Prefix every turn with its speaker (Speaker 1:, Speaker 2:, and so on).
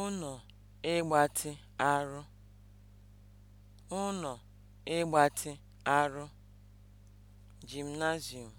Speaker 1: ụnọ ịgbatị arụ ụnọ̀ ịgbatị arụ (Gymnasium)